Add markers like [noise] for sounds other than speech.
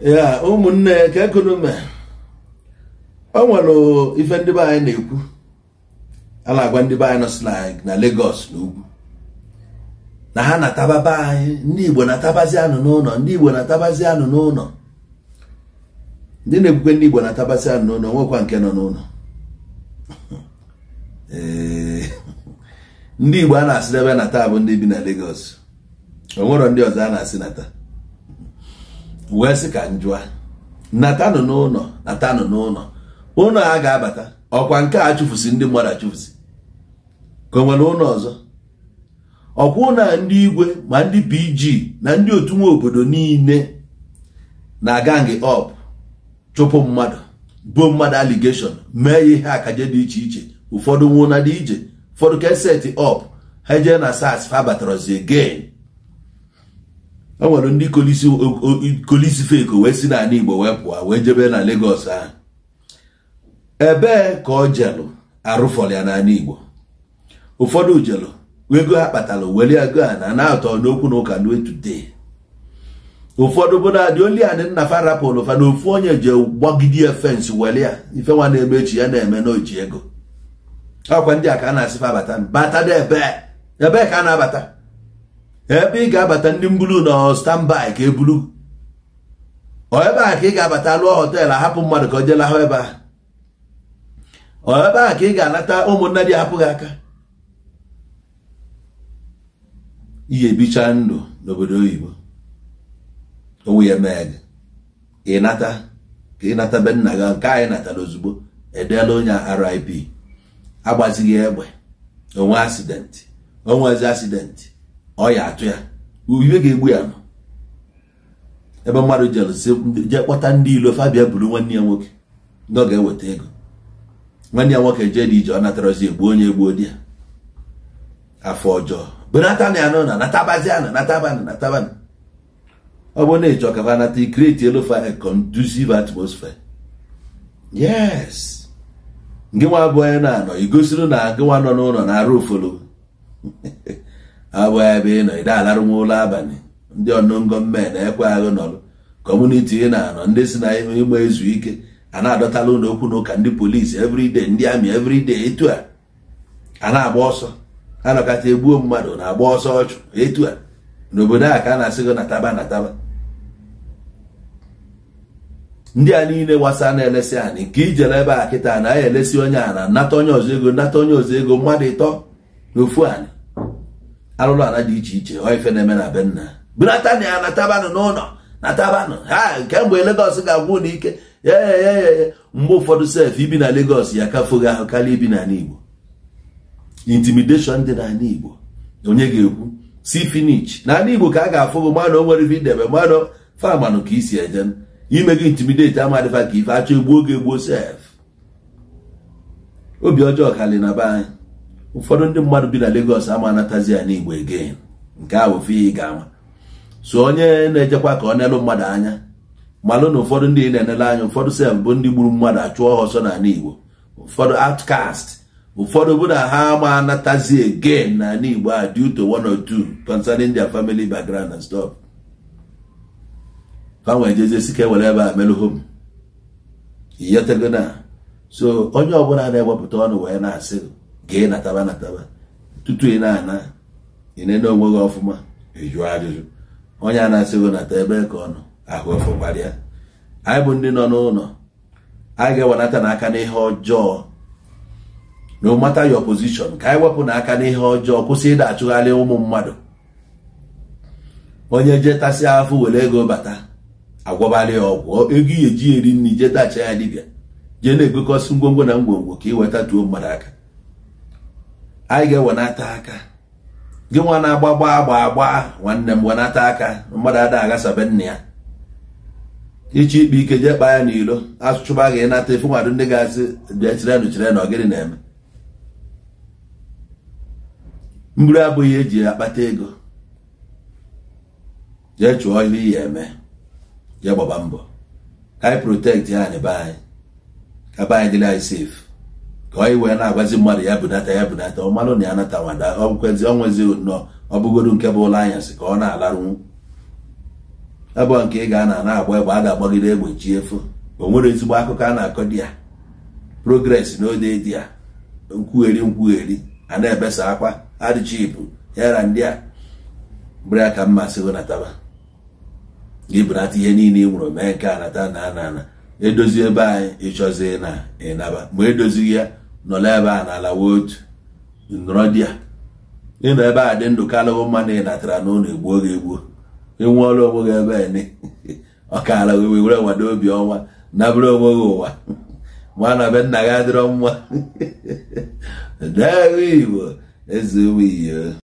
ya ụmụnne ka ekonomi o nwere ife ndị be anyị na-ekwu a na-agwa ndị be anyị nọ na Lagos na ugwu na ha na anyị ndị Igbo na-atabazi anụ n'ụlọ ndị Igbo na anụ n'ụlọ ndị na-ekwukwe ndị Igbo na anụ n'ụlọ nwekwa nke nọ n'ụlọ [laughs] ndị Igbo a na-asị ebe na taa bụ ndị bi na Lagos o ndị ọzọ a na-asị na pụghasị ka njụa natanụ n'ụlọ natanụ n'ụlọ ụlọ a ga-abata ọkwa nke a chụfụsị ndị mmadụ achụfusi ka o nwere ụlọ ọzọ ọkwa na ndị igwe ma ndị pg na ndị otu nwa obodo niile na-aga ngị ọp chụpụ mmadụ bụ mmadụ aligeshọn mee ya ihe akaje dị iche iche ụfọdụ nwụna dị ije ụfọdụ keseti ọp ha jee na sas fa batarazi again e nwere ndị kolisi feko wee si n'ala Igbo wee pụọ wee jebe na Lagos ahụ ebee ka ọ jelụ arụfọrọ ya n'ala Igbo ụfọdụ jelụ ego ha kpatara were ego a na na-atọ n'okwu na ụka today ụfọdụ bụ na dị oli anị nna farapụlụ fa na ofu onye ji gbagide ya fensị were ya ife nwa na-eme echi ya na-eme n'oji ego akwa ndị a ka a na-asị fa bata bata ebe ka a na-abata ebe ị ga-abata ndị mbulu na standby ka ebulu ebe a ka ị ga-abata lụọ họteelụ ahapụ mmadụ ka o jee ebe a ebe a ka ị ga-anata ụmụnne dị ahapụghị aka ihe bicha ndụ n'obodo oyibo onwe ya mee gị ịnata ka ịnata nata be nna gị nke anyị natara ozugbo edeela onye RIP agbazighị egbe onwe asidenti onwezi asidenti ọ ya atụ ya ubibe ga-egbu ya ebe mmadụ jee kpọta ndị ilo fabia buru nwanne ya nwoke ndị ọ ga-eweta ego nwanne ya nwoke jee dị ije ọ natarazi egbu onye egbuo di ya afọ ọjọọ benata na ya na natabazi ana natabanụ natabanụ ọ bụ na ịchọ ka anata ikreti elofa a conducive yes gị nwa abụọ ya na-anọ igosiri na gị nwa nọ n'ụlọ na-arụ ofolo [laughs] abụghị ebe ị nọ ide alarụnwa ụlọ abalị ndị ọnụngo mme na-ekwe aghụ nọrụ kọmuniti ị na-anọ ndị si na ịgba ezu ike a na-adọtala ụlọ okwu na ụka ndị polisi everyday ndị amị everyday etu a a na-agba ọsọ a nọkata egbuo mmadụ na-agba ọsọ ọchụ etu a n'obodo a ka a na-asị gị nataba nataba ndị a niile gbasa na-elesi anyị nke ijere ebe a kịta na elesi onye a na nata onye ọzọ ego nata onye ọzọ ego mmadụ ịtọ n'ofu anyị arụrụ ala dị iche iche ọ ife na-eme na benna nna ya na ya n'ụlọ na tabanụ ha kemgbe legọs ga-agwụ n'ike ya mgbe ụfọdụ sef ibi na legos ya kafoghị ahụ karịa ibi n'ala Igbo intimidation dị n'ala Igbo onye ga-ekwu si finish n'ala Igbo ka a ga-afụ gị mmadụ o nwere ife idebe mmadụ famanụ ka isi eje ime gị ama amadịfa ka ife achọ egbuo oge egbuo sef obi ọjọọ karị na be anyị ụfọdụ ndị mmadụ bi na Lagos ama anatazi ya n'Igbo again nke a bụ ị ga-ama so onye na-ejekwa ka ọ neelu mmadụ anya malụ na ụfọdụ ndị na-enele anya ụfọdụ sef bụ ndị gburu mmadụ achụọ ha ọsọ n'ala Igbo ụfọdụ outcast ụfọdụ bụ na ha ama anatazi again n'ala Igbo a due to one or two concerning India family background and stop. fanwe jezesi sike ewere ebe a melụhom hom na so onye ọbụla na-ewepụta ọnụ wee na-asị gee nataba nataba tutu ị na-ana ịnene onwe gị ọfụma ịjụ ajụjụ onye a na-asị gị nata ebe ka ọ nọ ahụ ọfụkwara anyị bụ ndị nọ n'ụlọ anyị ga-ewenata n'aka n'ihe ọjọọ no matter your opozishọn ka anyị wepụ n'aka n'ihe ọjọọ kwụsị ịda achụgharị ụmụ mmadụ onye jetasị afọ were ego bata agwọbalị ya ọgwụ ego ihe eji eri nri jetacha ya dibịa jee na-egokọsị ngwongwo na ngwongwo ka ị weta tuo mmadụ aka anyị ga-ewenata aka gị nwa na-agba gbaa gbaa agba nwanne m wenata aka mmadụ ada agasabe nna ya iche ikpe ike jee kpaa ya n'ilo asụchụba gị ịnata efu mmadụ ndị ga-asị bịa chirenu ọ gịnị na-eme mbụrụ abụghị eji akpata ego jee chụọ ihe iyi eme jee gbaba mbọ ka anyị protekti ya na be anyị ka be anyị dịrị anyị safe ka anyị wee na-agwazi mmadụ ya bunata ya bunata ọ na ya natawada ọkwezi ọnwezi nnọọ ọ bụgodu nke bụ ụlọ anyasị ka ọ na-alarụnwu abụọ nke ị ga na-agba egbe a ga-agbagide egbe chi efo o nwere ezigbo akụkọ a na-akọ di ya progres ode di ya nkwugheri nkwugheri a na-ebesa akwa adịchibụ ya na ndị a bụrụ ya ka mmasị wenataba ibunata ihe niile ị nwụrụ mee nke anata na ana ana edozi ebe anyị ịchọzi na ịnaba ma edozighị ya nọrọ ebe a na-alawa otu nọrọ di ya ịnọ ebe a dị ndụ kalụwo mma na ị natara na ụlọ egbuo gị egbuo ịnwe ọrụ onwe gị ebe ene [laughs] ọkara gị wee were nwado obi ọnwa nabụrụ onwe gị ụwa [laughs] ma na be nna gị adịrọ mma [laughs] dee Igbo eze iyo